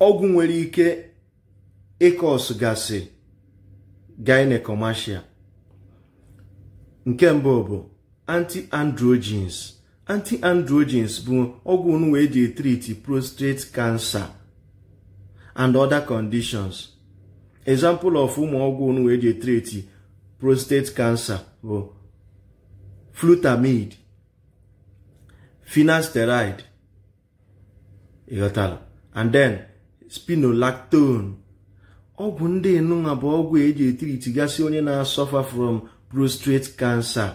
ọgwụ nwere ike ịkọs gasị gynecomastia nke mbụ bụ anti-androgens anti-androgens bụ ọgwụ onwe eji etriti prostate cancer and other conditions example of ụmụ ọgwụ onwe eji etriti prostate cancer bụ flutamid, finasteride ịghọtara and then spinolactone ọgwụ ndị nụnwa bụ ọgwụ eji etiriti gasị onye na-asọfa from prostret cancer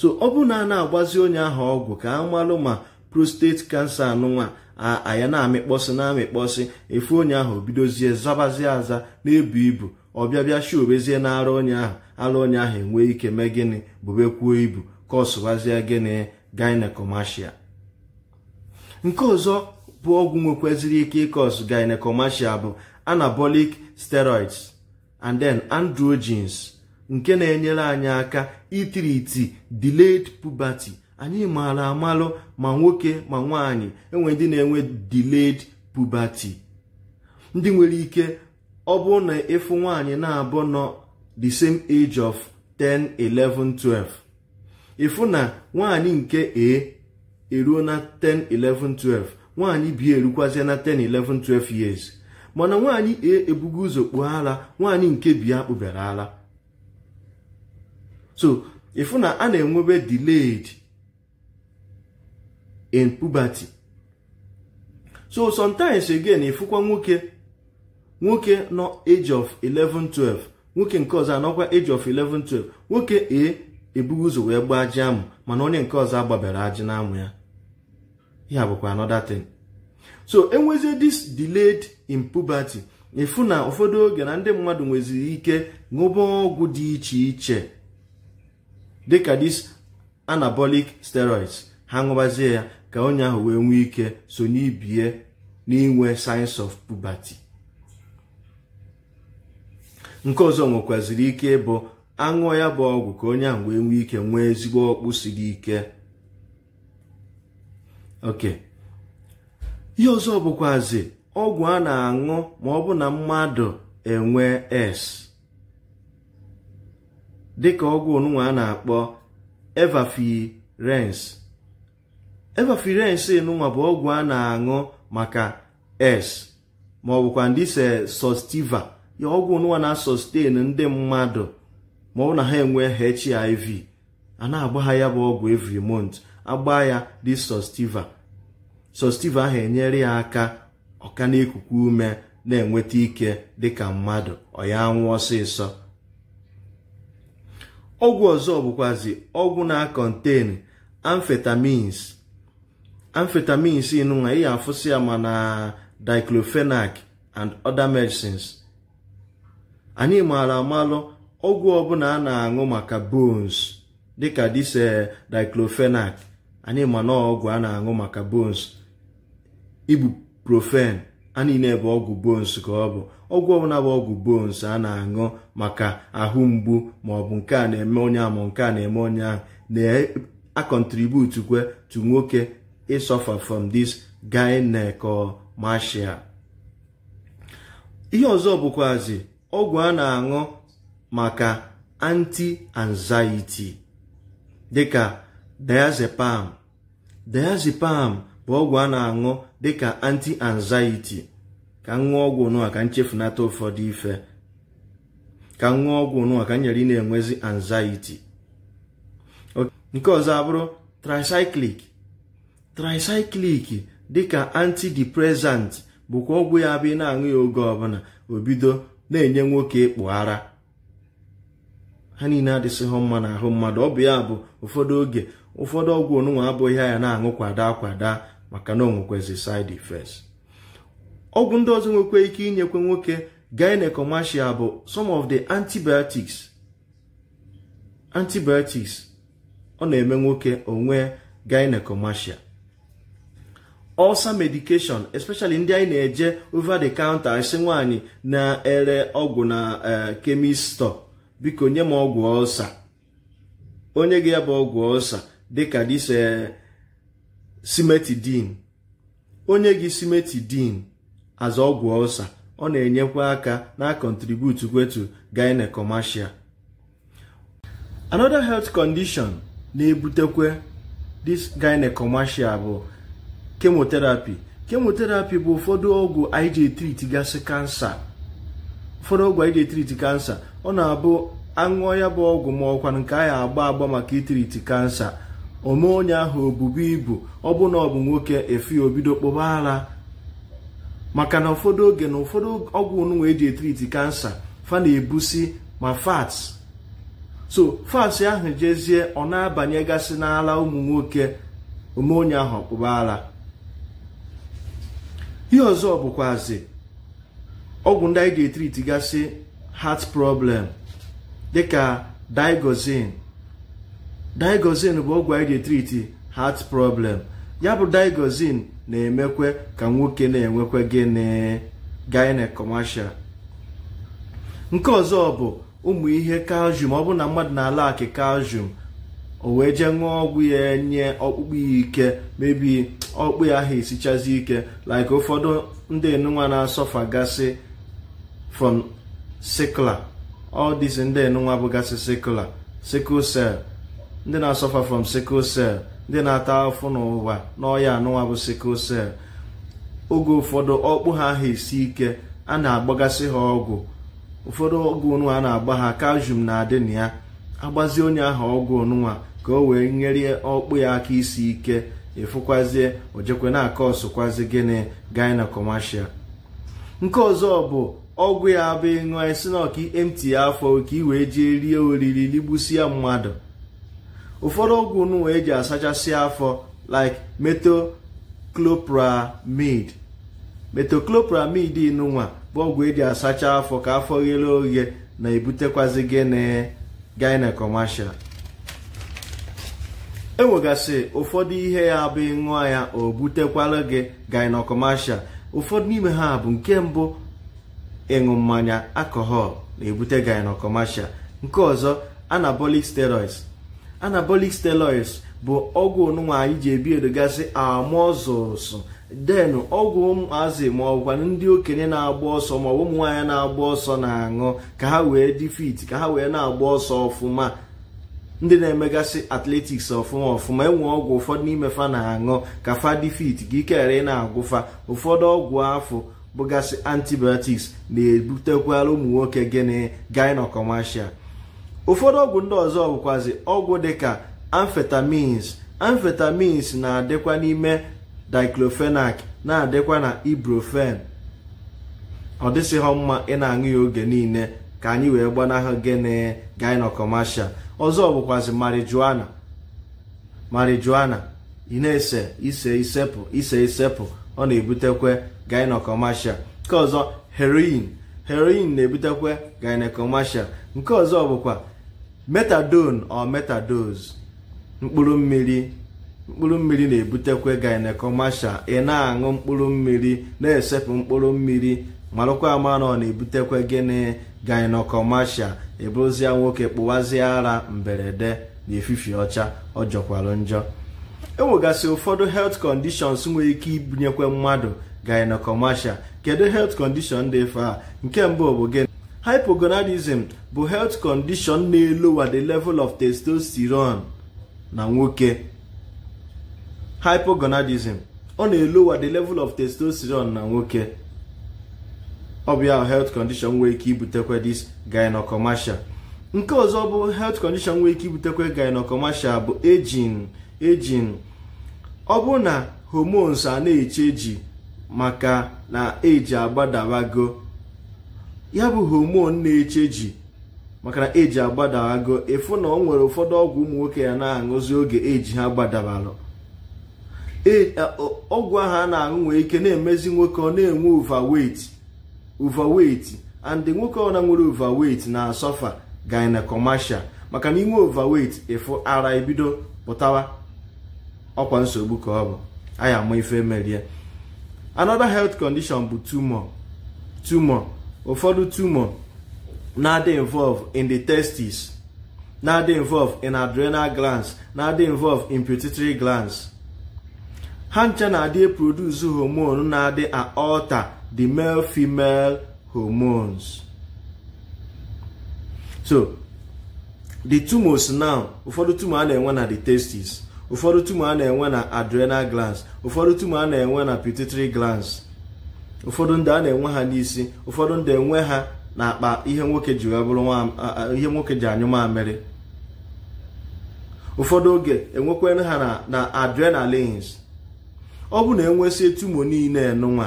so ọ bụ na a na-agbazi onye ahụ ọgwụ ka a malụ ma prostate cancer nụnwa aya na-amịkpọsị na-amịkpọsị efu onye ahụ bidozie zabazie aza na-ebu ibu ọbịabịa shiobezie na-ara onye ahụ arụ onye ahụ enwee ike mee gịnị bụbekwuo ibu ka ọsụbazie gịnị gynecomastia nke ọzọ bụ ọgwụ nwekwaziri ike ịkọs gynecomastia bụ anabolic steroids and then androgens nke na-enyere anyị aka itiriti delayed puberty anyị maara amalụ ma nwoke ma nwaanyị enwe ndị na-enwe delayed puberty ndị nwere ike ọ bụrụ na ịfụ nwaanyị na-abụ nọ the same age of 10 11 12 ịfụ na nwaanyị nke a eruo na 10 11 12 nwaanyị bi erukwazie na 10 11 12 years mana nwaanyị a e, ebugo ụzọ kpuo ara nwaanyị nke bi ya kpụbara ara so ịfụ na a na-enwebe delayed in puberty so sometimes again ịfụkwa nwoke nwoke nọ age of 11 12 nwoke nke ọzọ anọkwa age of 11 12 nwoke a e, ebugo ụzọ wee gbaa ji amụ mana onye nke ọzọ agbabara ajị n'amụ ya ya bụkwa another thing so enwezie dis delayed in puberty ịfụ na ụfọdụ oge na ndị mmadụ nweziri ike ṅụba ọgwụ dị iche iche dịka this anabolic steroids ha ṅụbazie ya ka onye ahụ wee nwee ike so n'ibie n'inwe signs of puberty nke ọzọ nwekwaziri ike bụ aṅụọ ya bụ ọgwụ ka onye ahụ wee nwee ike nwee ezigbo ọkpụ siri ike oke ihe ọzọ bụkwazi ọgwụ a na-aṅụ ma ọ bụ na mmadụ enwe s dịka ọgwụ onunwa a na-akpọ evafirens evafirens enunwa bụ ọgwụ a na-aṅụ maka s ma ọ bụkwa ndị se sostiva ya ọgwụ onunwa na-asostain ndị mmadụ ma ọ bụ na ha enwe hiv a na-agba ha ya bụ ọgwụ every agba ya dị sostiva sostiva ahụ enyere ya aka ọka na ume na-enweta ike dịka mmadụ ọ anwụ ọsịsọ ọgwụ ọzọ bụkwazi ọgwụ na-akọntenu amfetamins amfetamins nụnwa ị afụsị ya mana diclofenac and other medicines anyị maara amalụ ọgwụ ọbụla a na-aṅụ maka bones dịka dise diclofenac anyị ma na ọgwụ a na-aṅụ maka bones ibuprofen a niile bụ ọgwụ bons ka ọ bụ ọgwụ ọbụla bụ ọgwụ bons a na-aṅụ maka ahụ mgbu maọbụ nke a na-eme onye a ma nke a na-eme onye ahụ na-akọntribute kwe tu nwoke ịsọfa e from this gynec or marshal ihe ọzọ bụkwazi ọgwụ a na-aṅụ maka anti anxiety dịka diazepam diazepam bụ ọgwụ a na-aṅụ dịka anti anxiety ka ṅụọ ọgwụ nụa ka nchefunata ụfọdụ ife ka ṅụọ ọgwụ nụa ka nyere ị na-enwezi anxiety nke ọzọ abụrụ tricyclic tricyclic dịka antidepressant bụkwa ọgwụ ya bụ ị na-aṅụ ya oge ọbụla obido na-enye nwoke ịkpụ ara ha niile adịsịghị mma n'ahụ mmadụ ọ bụ ya bụ ụfọdụ oge ụfọdụ ọgwụ onunwa abụghị anya na-aṅụ kwada akwada maka na onwekwezi side effects ọgwụ ndị ọzọ nwekwa ike inyekwe nwoke gynecomastia bụ some of the antibiotics antibiotics ọ na-eme nwoke onwe gynecomastia ulcer medication especially ndị anyị na-eje over the counter isi nwaanyị na-ere ọgwụ na eh, chemist biko nye m ọgwụ ọlsa onye ga ya bụ ọgwụ ọlsa dịka dis eh, simetidin onye gị simetidin azụ ọgwụ ọlsa ọ na-enyekwa aka na contribute kwetu gine another health condition na-ebutekwe dis gine bụ chemotherapy chemotherapy bụ ụfọdụ ọgwụ ij3 gasị kansa ụfọdụ ọgwụ ij kansa ọ na-abụ aṅụọ ya bụ ọgwụ ma ọkwa nke a ya agba agba maka itriti kansa ome onye ahụ obubu ibu ọbụna ọ nwoke efi obido kpọba ara maka na ụfọdụ oge na ụfọdụ ọgwụ onunwa eji etriti kansa fa na-ebusi ma fats so fats ahụ jezie ọ na abanye gasị n'ala ụmụ nwoke ome onye ahụ ọkpụba ara ihe ọzọ bụkwazi ọgwụ ndị anyị ga-etriti gasị heart problem dịka digoxin Digoxin bụ ọgwụ anyị ji etriti heart problem ya bụ Digoxin na-emekwe ka nwoke na-enwekwe gịnị gynecomastia nke ọzọ bụ ụmụ ihe calcium ọ bụrụ na mmadụ na-ala akị calcium o wee jee ṅụọ ọgwụ ya nye ọkpụkpụ ya ike mebi ọkpụ ya ahụ esichazi ike like ụfọdụ ndị enunwa na-asọfa gasị from sickle all these ndị enunwa bụ gasị sickle sickle cell ndị na-asọfa from sickle cell ndị na-ata afụ n'ụwa n'ọya anụnwa bụ sickle cell oge ụfọdụ ọkpụ ha ahụ esi ike a na-agbagasị ha ọgwụ ụfọdụ ọgwụ onụwa na-agba ha calcium na-adị na ya agbazie onye ahụ ọgwụ onụnwa ka o wee nyerie ọkpụ ya aka isi ike efukwazie ojekwe na-aka ọsụkwazi gịnị gina kọmashal nke ọzọ bụ ọgwụ ya bụ ịṅụọ esi na ọka emti afọ ka i wee jee rie oriri ya mmadụ ụfọdụ ọgwụ nụnwa eji asachasị afọ like metoclopramid metoclopramid nụnwa bụ ọgwụ eji asacha afọ ka afọ ghere oghe na-ebutekwazi gịnị gynecomastia enwegasị ụfọdụ ihe ya bụ ịṅụọ ya o butekwara gị gynecomastia ụfọdụ n'ime ha bụ nke mbụ ịṅụ mmanya alcohol na-ebute gynecomastia nke ọzọ anabolic steroids anabolic steroids bụ ọgwụ onunwa anyị ji ebi edogasị amozus den ọgwụ ụmụazị ma ọgwụkwa ndị okenye na-agba ọsọ ma ụmụ nwaanyị na-agba ọsọ na-aṅụ ka ha wee dị fit ka ha wee na-agba ọsọ ọfụma ndị na-emegasị atletiks ọfụma ọfụma enwe ọgwụ ụfọdụ n'ime fa na-aṅụ ka fa dị fit ka ike ghara ị na-agwụfa ụfọdụ ọgwụ afọ bụgasị antibiotics na-ebutekwara ụmụ nwoke gịnị gynecomastia ụfọdụ ọgwụ ndị ọzọ bụkwazi ọgwụ dịka amfetamins amfetamins na-adịkwa n'ime diclofenac na-adịkwa na ibuprofen ọ dịsị ha mma ị na-aṅụ ya oge niile ka anyị wee gbanahụ gịnị kọmashal ọzọ bụkwazi marijuana marijuana ị na-ese ise isepụ ise isepụ ọ na-ebutekwe kọmashal nke ọzọ heroin heroin na-ebutekwe kọmashal nke ọzọ bụkwa metadone or metadose mkpụrụ mmiri mkpụrụ mmiri na-ebutekwa gynecomastia ị na-aṅụ mkpụrụ mmiri na-esepụ mkpụrụ mmiri marụkwa ama na ọ na-ebutekwa gịnị gynecomastia ebụrụzia nwoke kpụwazie ara mberede na efifi ọcha ọ jọkwara njọ enwegasị ụfọdụ health conditions nwere ike ibunyekwa mmadụ gynecomastia kedu health condition dị fe a nke mbụ bụ gịnị hypogonadism bụ health condition na-elowa the level of testosterone na nwoke hypogonadism ọ na-elowa the level of testosterone na nwoke ọ bụ ya health condition nwee ike ibutekwa dis gynecomastia nke ọzọ bụ health condition nwee ike ibutekwa gynecomastia bụ aging aging ọ bụ na hormones a na eche eji maka na eji agbadabago ya bụ homon na-eche ji maka na eji agbada agụ ịfụ na ọ nwere ụfọdụ ọgwụ ụmụ nwoke ya na-aṅụzi oge eji ha gbadabalụ e, ọgwụ ahụ a na-aṅụ nwere ike na-emezi nwoke ọ na-enwe overweight overweight and nwoke ọ na nwere overweight na-asọfa kọmashal maka na inwe overweight ịfụ ara ebido pụtawa ọkwa nsogbu ka ọ bụ anyị ama ife merie another health condition bụ tumor tumor ụfọdụ tumor na-adị involve in the testes na-adị involve in adrenal glands na-adị involve in pituitary glands ha ncha na-adị produce hormone na-adị alter the male female hormones so the tumors now ụfọdụ tumor a na-enwe na the testes ụfọdụ tumor a na-enwe na adrenal glands ụfọdụ tumor a na-enwe na pituitary glands ụfọdụ ndị a na-enwe ha n'isi ụfọdụ ndị enwe ha na-akpa ihe nwoke ji wee bụrụ ihe nwoke ji anyụ mamịrị ụfọdụ oge enwekwere ha na adrenalins ọ bụ na enwesị tumo niile nụnwa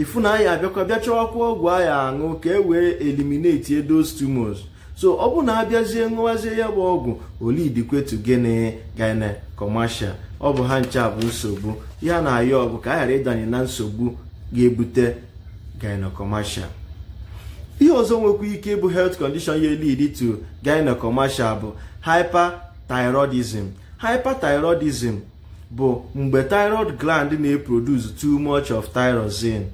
ifu na anyị abịakwa bịa chọwakwa ọgwụ anyị aṅụ ka e wee eliminetie those tumors so ọ bụ na abịazie ṅụwazie ya bụ ọgwụ olidikwetu gịnị gine commercial ọ bụ ha ncha bụ nsogbu ya na ayọ bụ ka a ghara ịdanye na nsogbu ga-ebute gynecomastia ihe ọzọ nwekwa ike ịbụ health condition ya lead to gynecomastia bụ hyperthyroidism hyperthyroidism bụ mgbe thyroid gland na-eproduce too much of tyrosine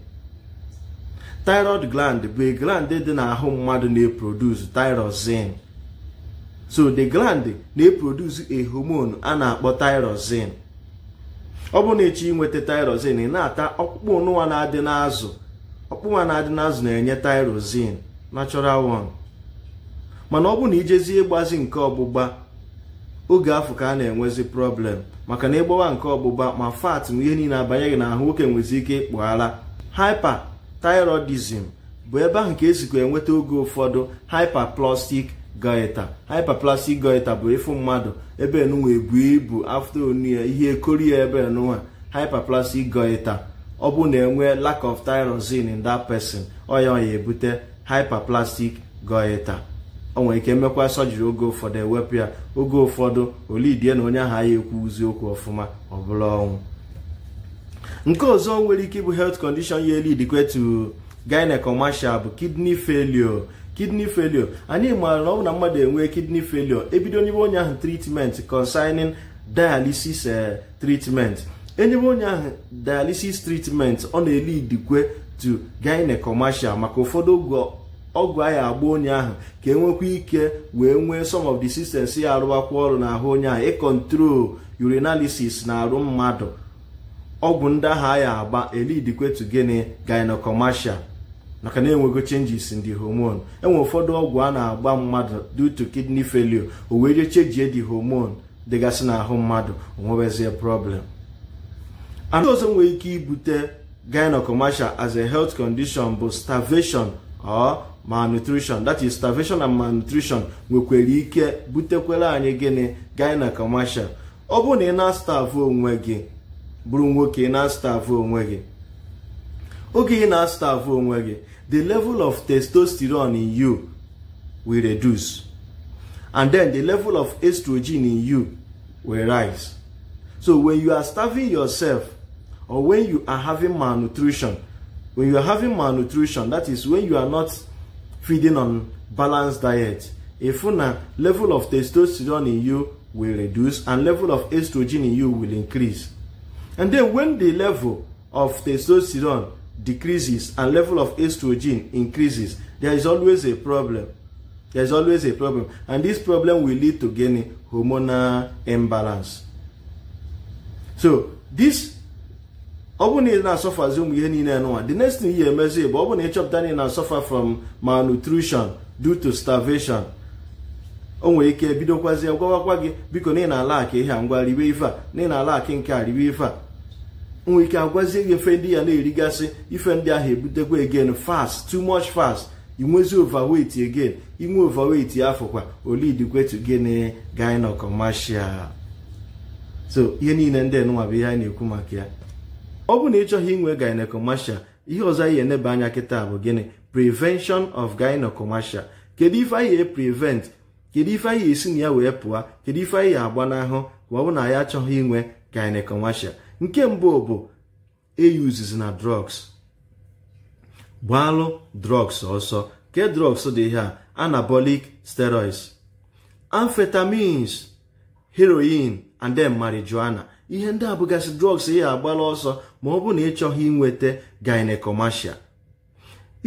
thyroid gland bụ a gland dị n'ahụ mmadụ na-eproduce tyrosine so the gland na-eproduce a hormone a na-akpọ tyrosine. ọ bụ na eche inweta tyrozin ị na-ata ọkpụkpụ nwa na-adị n'azụ na-adị n'azụ na-enye tyrozin natural one mana ọ bụrụ na ijezie ịgbazi nke ọgbụgba oge afọ ka a na-enwezi problem maka na ịgbawa nke ọgbụgba ma fat na ihe niile abanyeghị ahụ nwoke nwezi ike ịkpụghala hyperthyroidism bụ ebe ahụ ka esikwa enweta oge ụfọdụ hyperplastic goita hyperplastic goita bụ ịfụ mmadụ ebe enunwa ebu ibu afta onuya ihe koria ebe enunwa hyperplastic goita ọ bụ na enwe lack of tyrosine in that person oya oya ebute hyperplastic goita o nwere ike emekwa sọjiri oge ụfọdụ ewepụ ya oge ụfọdụ olidie na onye ahụ ya ekwuzi okwu ọfụma ọ bụla ọnwụ nke ọzọ nwere ike ịbụ health condition ya elidikwe gine gynecomastia bụ kidney failure kidney failure anyị maara na ọ bụ na mmadụ enwee kidney failure ebido nyebe onye ahụ treatment concerning dialysis eh, treatment enyebe onye ahụ dialysis treatment ọ na-eli idikwe to gine commercial maka ụfọdụ oge ọgwụ anyị agba onye ahụ ka enwekwa ike wee nwee some of the systems ya arụbakwa ọrụ n'ahụ onye ahụ ịkọntrol e urinalysis na arụ mmadụ ọgwụ ndị ahụ anyị agba elidikwe to gịnị gynecomastia maka na enwego chenjis ndị homon enwere ụfọdụ ọgwụ a na-agba mmadụ due to kidney failure o wee je chejie dị homon dịgasị n'ahụ mmadụ onwewezie problem ndị ọzọ nwere ike ibute gynecomastia as a health condition bụ starvation or malnutrition that is starvation and malnutrition nwekwere ike butekwere anyị gịnị gynecomastia ọ bụrụ na ị na-astafụ onwe gị bụrụ nwoke ị na-astafụ onwe gị oge ị na-asụta afụ onwe gị the level of testosterone in you will reduce and then the level of estrogen in you will rise so when you are starving yourself or when you are having malnutrition when you are having malnutrition that is when you are not feeding on balanced diet ifu na level of testosterone in you will reduce and level of estrogen in you will increase and then when the level of testosterone decreases and level of estrogen increases, there is always a problem. There is always a problem. And this problem will lead to gaining hormonal imbalance. So, this ọ bụrụ na ị na-asọfazi ụmụ ihe niile nụwa the next thing you emezi bụ ọ bụrụ na chọpụta na ị na-asọfa from malnutrition due to starvation o nwere ike bidokwazie gwawakwa gị biko na ị na-ala ihe a ngwa ife a na ị na-ala nke a ife nwere ike agwazie gị efe ndị ya na-erigasị ife ndị ahụ ebutekwa again fast too much fast inwezi overweight again inwe overweight afọkwa olidikwetu gị na gynecomastia so ihe niile ndị nụnwa bụ ihe anyị na-ekwu maka ya ọ bụ na ị chọghị inwe gynecomastia ihe ọzọ anyị eneba anya kịta bụ gịnị prevention of gynecomastia kedu ife anyị prevent kedu ife anyị esi na ya wee pụọ kedu ife anyị agbanahụ ka ọ bụ na anyị achọghị inwe gynecomastia nke mbụ bụ eyuzizi na drugs gbalụ drugs ọsọ ke drugs dị ihe a anabolic steroids amfetamines heroin and then marijuana ihe ndị a bụgasị ihe ya agbala ọsọ ma ọ bụ na ịchọghị inweta gynecomastia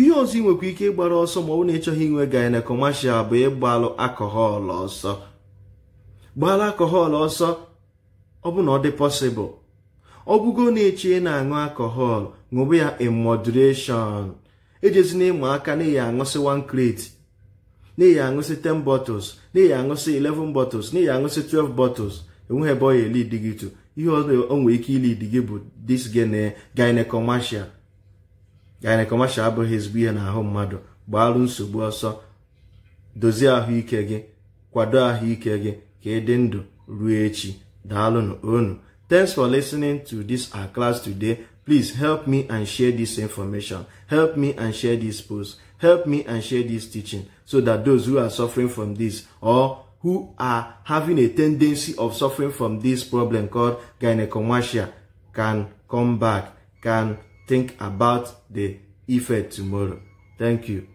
ihe ọzọ ị nwekwa ike ịgbara ọsọ ma ọ bụ na ịchọghị inwe gynecomastia bụ ịgbalụ akọhọl ọsọ gbalụ akọhọl ọsọ ọ bụ na ọ dị pọsịbụl ọ na-eche na-aṅụ alcohol ṅụbụ ya in moderation ejezina ịmụ aka na eyi aṅụsị 1 crate na eyi aṅụsị 10 bottles na eyi aṅụsị 11 bottles na eyi aṅụsị 12 bottles enweghị ebe ọ ya eli gị tụ ihe ọ nwere ike ili di gị bụ this gynecomastia gynecomastia abụghị ezigbo ihe n'ahụ mmadụ gbaarụ nsogbu ọsọ dozie ahụike gị kwado ahụike gị ka ị dị ndụ ruo echi daalụnụ onu Thanks for listening to this our class today. Please help me and share this information. Help me and share this post. Help me and share this teaching so that those who are suffering from this or who are having a tendency of suffering from this problem called gynecomastia can come back, can think about the effect tomorrow. Thank you.